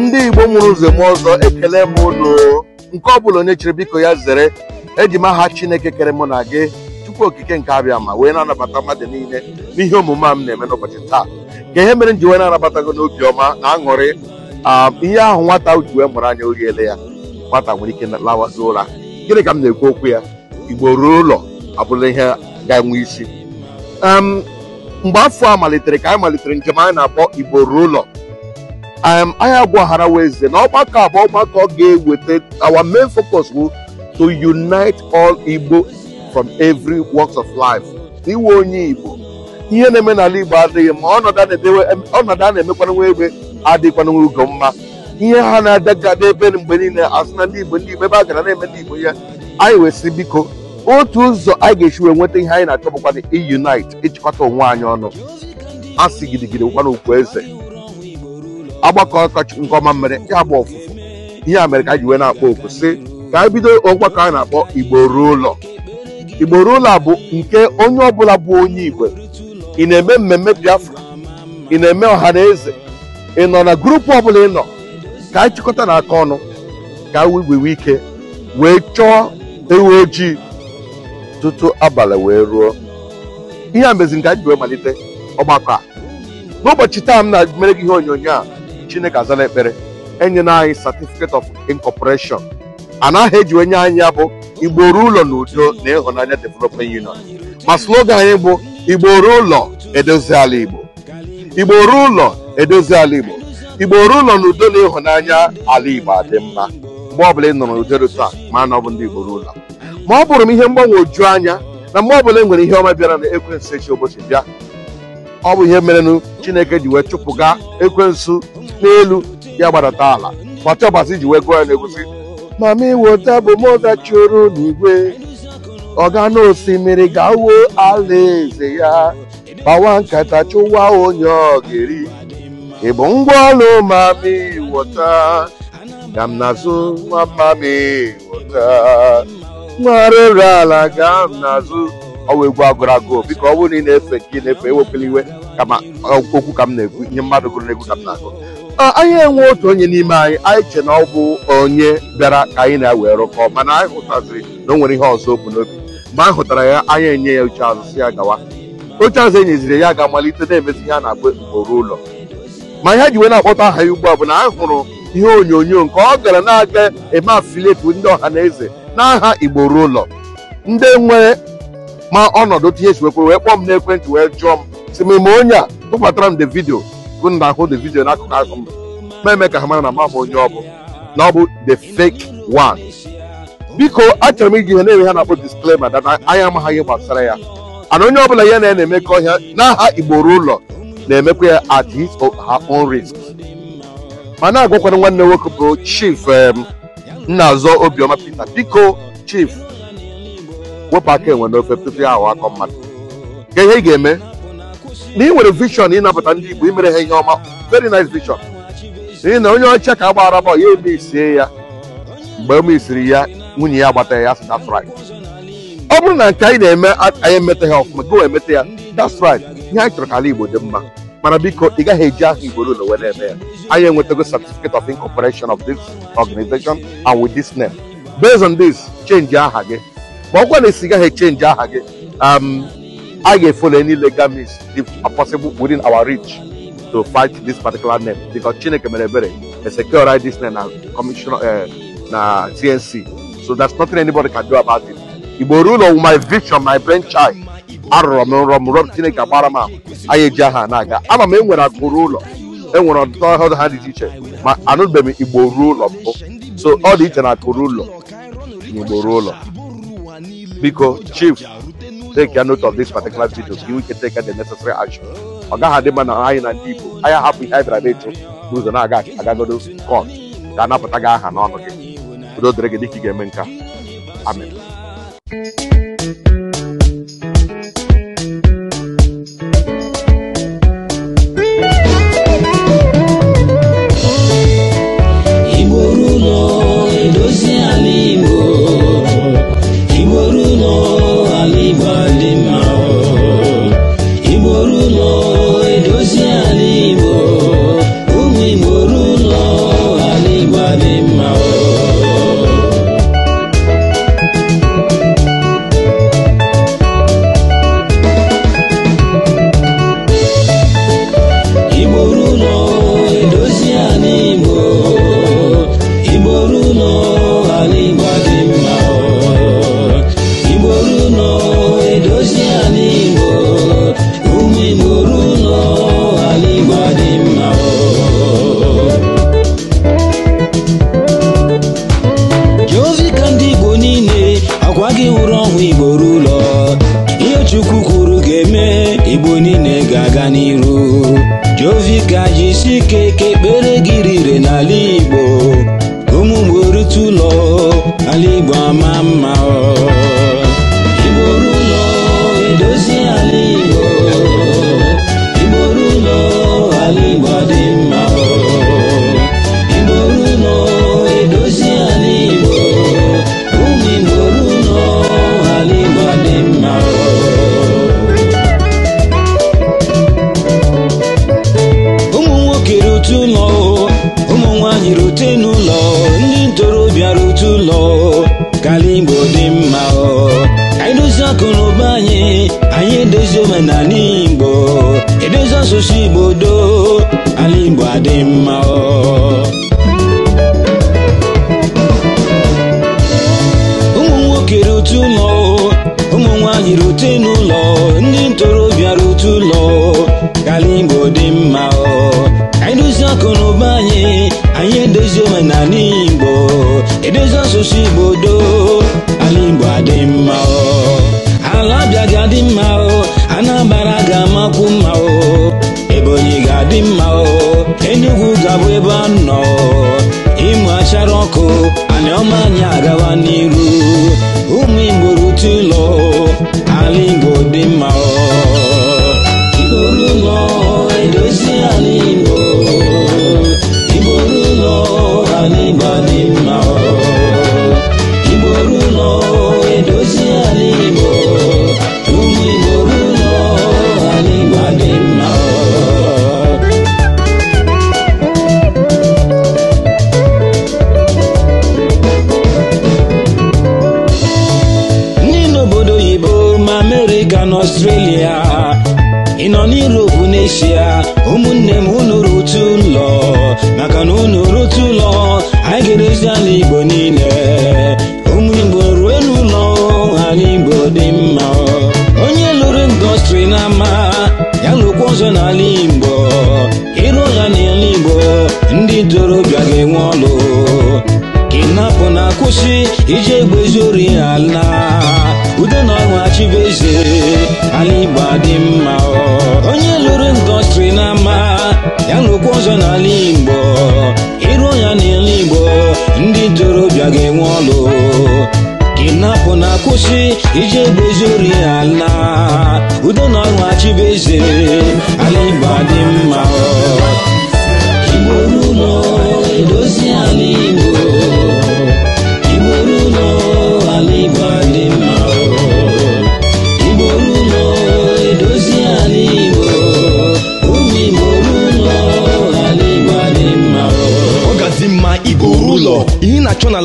ndị igbo mụrụ ụzọ m ọzọ ekele m ụlọ nke ọ bụla onye chere biko ya zere eji m aha chineke kere mụ na gị tupu okike nke abịa ma wee na-anabata mmadụ niile n'ihe omume a m na-eme n'ụbọchị taa ka ihe mere m ji wee na-anabata gị n'obi ọma na aṅụrị ihe ahụ nwata ji wee mụrụ anya ga-ele ya nwata nwere ike lawazi ụra gịnị ka m na-ekwu okwu ya igbo ruo ụlọ abụla ihe ga-enwe isi mgbe afọ a malitere ka anyị malitere njem anyị na-akpọ igbo ruo ụlọ um, anyị agwagharawa eze na ọgbakọ abụọ ọgbakọ ga-eweta our main focus bụ to unite all igbo from every walks of life iwe onye igbo ihe na-eme n'ala igbo adịghị ma ọnọdụ a na nwa egbe adịkwanwe ugo mma ihe ha na-adagade ebe mgbe niile asị na ndị igbo ndị igbo ebe a gara na-eme ndị igbo ya anyị wee biko otu ụzọ anyị ga-esi wee nweta ihe anyị na-achọ bụkwa iunite ịchịkọta onwe anyị ọnụ asị gidigidi bụkwana okwu eze agbakọ ọkọchị nke ọma mmere ya ọfụfụ ihe a mere ka anyị wee na-akpọ okwu sị ka anyị bido ọgbakọ anyị na-akpọ igbo ruo ụlọ igbo ruo ụlọ bụ nke onye ọbụla bụ onye igwe ị na-eme mmemme biafra ị na-eme ọha na eze ị nọ na gurupu ọbụla ị nọ ka anyị chịkọta na aka ọnụ ka anyị wee ike wee chọọ ewu ojii tutu abalị wee ruo ihe a mezi nke anyị ji wee malite ọgbakọ a n'ụbọchị taa m na-mere gị ihe onyonyo a chineke azala ekpere enyela anyị certificate of A anaghị ejiwe nye anyị ya bụ igbo ụlọ na udo na ịhụnanya development union ma slogan anyị bụ igboro ụlọ edozi ala igbo igbo ụlọ edozi ala igbo igbo ụlọ na udo na ịhụnanya ala igbo adị mma mgbe ọbụla ị nọ n'udo rụta ma na ọ bụ ndị igbo ụlọ ma ọ bụrụ m ihe mgbanwoju anya na mgbe ọbụla e nwere ihe ọma bịara na ekwensu echi ụbọchị bịa ọ bụ ihe merenụ chineke ji wee chụpụga ekwensu n'elu ya gbadata ala ma ji wee gụọ ya na-egosi ma m iweta bụ m dachụrụ n'igwe ọga na osimiri ga alaeze ya kpawa nkata chụwa onye ọ ga-eri ị bụ ngwa ọlụ mami wọta ka m na-azụ nwa mami wọta mgbaghara ere ala gaa n'azụ ọwa egwu agụrụ agụụ biko ọ bụrụ na ị na-efe ka ị na-efe ewepụla iwe kama okwu ka m na-ekwu ihe mmadụ gụrụ egwu ka m na-agụ anyị enwe otu onye n'ime anyị anyị che na ọ bụ onye bịara ka anyị na ewe rụkọ mana anyị hụtaziri na o nwere ihe ọzọ okwu n'obi mgbe a hụtara ya anyị enye ya oche azụ si ya gawa oche azụ enyeziri ya ga-amalite na-emezi ihe a na-agba mkporo ụlọ ma ihe ji wee na-akpọta aha ya ugbu a bụ na anyị hụrụ ihe onyonyo nke ọ gara na-aga eme afilieti ndị ọha na eze n'aha igbo ụlọ ndị nwee ma ọnọdụ tinye esiwekwere wee kpọọ m n'ekwentị wee jụọ m si m onye a tụbatara m de vidio bụ na ahụ de vidio n'akụkụ ahụ m na-eme ka ha mara na ma m onye ọ bụ na ọ bụ the fake one biko achọrọ m iji ihe na-enwe ha na-akpọ disclaimer data anya amaghị gbasara ya ana onye ọbụla ya na ya na-emekọ ọhịa n'aha igbo ụlọ na-emekwa ya at his own risk ma na-agwakwara nwanne nwoke bụ chief nna azọ obiọma pita biko chief wepụ aka enwe n'ofe tupu ya ahụ akọ mmadụ ka ihe ị ga-eme na ị nwere vision ịnapụta ndị igbo imere ha ihe ọma very nice vision n'ihi na onye ọcha ka a gbara ya eme isie ya mgbe ome isiri ya nwunye ya gbata ya sị right ọ bụrụ na nke anyị na-eme anyị ha ọfụma gị wee emeta ya that's right ihe anyị chọrọ ka ala igbo dị mma ị am eji ahụ igbo a certificate of incorporation of this organization and with this name based on this change aha But ma ọ gwa na change aha gị I um, get follow any legal means if possible within our reach to fight this particular name because Chineke Merebere is right this name now commissioner uh, na TNC so there's nothing anybody can do about it will rule of my vision my brainchild arụrụ m nrọ m rọm chineke agbara m ahụ anyị eji aha na-aga ama m enwere agụrụ ụlọ enwere ọtụtụ ọhụrụ ha dị iche ma anụbeghị m igbo ruo ụlọ mbụ so ọ dị iche na akụrụ ụlọ na igbo ruo ụlọ biko chief take note of this particular video ka iwu ike take the necessary action ọ gaghị adị mma na anyị na ndị igbo anyị hapụ ihe anyị bịara na-eche n'ụzọ na-aga agagodo kọn ga-anapụta gị aha n'ọnụ gị udo dịrị gị dịka ị ga-eme nka amen ekpere gị rire n'ala Igbo ụmụ mgbe rute ụlọ ala Igbo ama mma ọ banye anyị edozi omenala igbo edozi asụsụ igbo doo ala igbo adị mma ụmụ nwoke rute ụlọ ụmụ nwanyị rute n'ụlọ ndị ntorobịa rute ụlọ ka ala igbo dị mma anyị edozi akụ anyị anyị edozi omenala igbo edozi asụsụ igbo doo ga-adị mma o Anambra ga-amakwu mma o Ebonyi ga-adị mma o Enugu ga-abụ ebe a nọ ịmụ achara ọkụ anyị ọma anyị agawa n'iru ụmụ Igbo rute ụlọ ala Igbo dị mma o ị nọ n'Europe n'eshia ụmụnne m unu otu ụlọ maka na unu otu ụlọ anyị ga-erezi ala Igbo niile ụmụ Igbo ruo n'ụlọ ala Igbo dị mma onye lụrụ ndọstrị n'ama ya lụkwa ọzọ n'ala Igbo ịrụ ya n'ala Igbo ndị ntorobịa ga-enwe ọlụ kwụsị iji egbe ala udo na ọṅụ chibueze ala igbo adị mma onye lụrụ ndọstrị n'ama ya n'okwu ọzọ n'ala igbo ịrụ ya n'ala igbo ndị ntorobịa ga-enwe ọlụ kinapụ na kwụsị iji egbe ala udo na ọṅụ chibueze ala igbo adị mma igbo n'ụlọ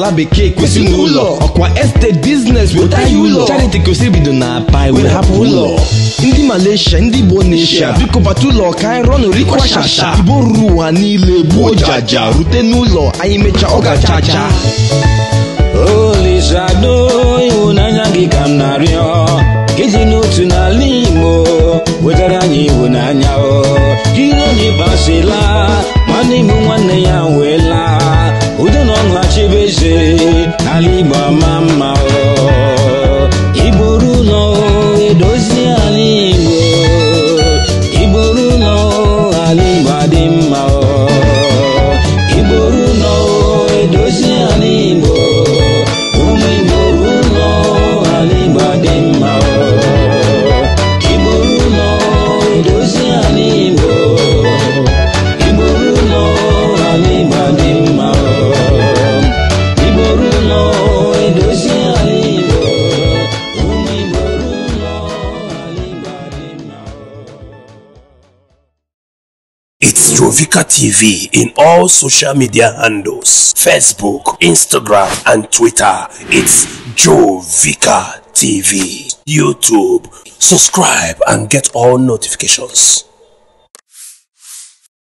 ala bekee kwesịrị n'ụlọ ọkwa estate business weta ụlọ charity kwesịrị bido na pai wee hapụ ụlọ ndị malaysia ndị igbo neshia biko bata ụlọ ka anyị rọnụ rikwashasha igbo ruru ụwa niile gbuo jaja rute n'ụlọ anyị mechaa ọga gachacha Olisado ịhụnanya gị ka m dị n'otu n'ala Igbo wetara anyị ịhụnanya o gị na onye basila nwanne m nwanne ya nwe Astrovika TV in all social media handles Facebook, Instagram, and Twitter. It's Jovika TV. YouTube. Subscribe and get all notifications.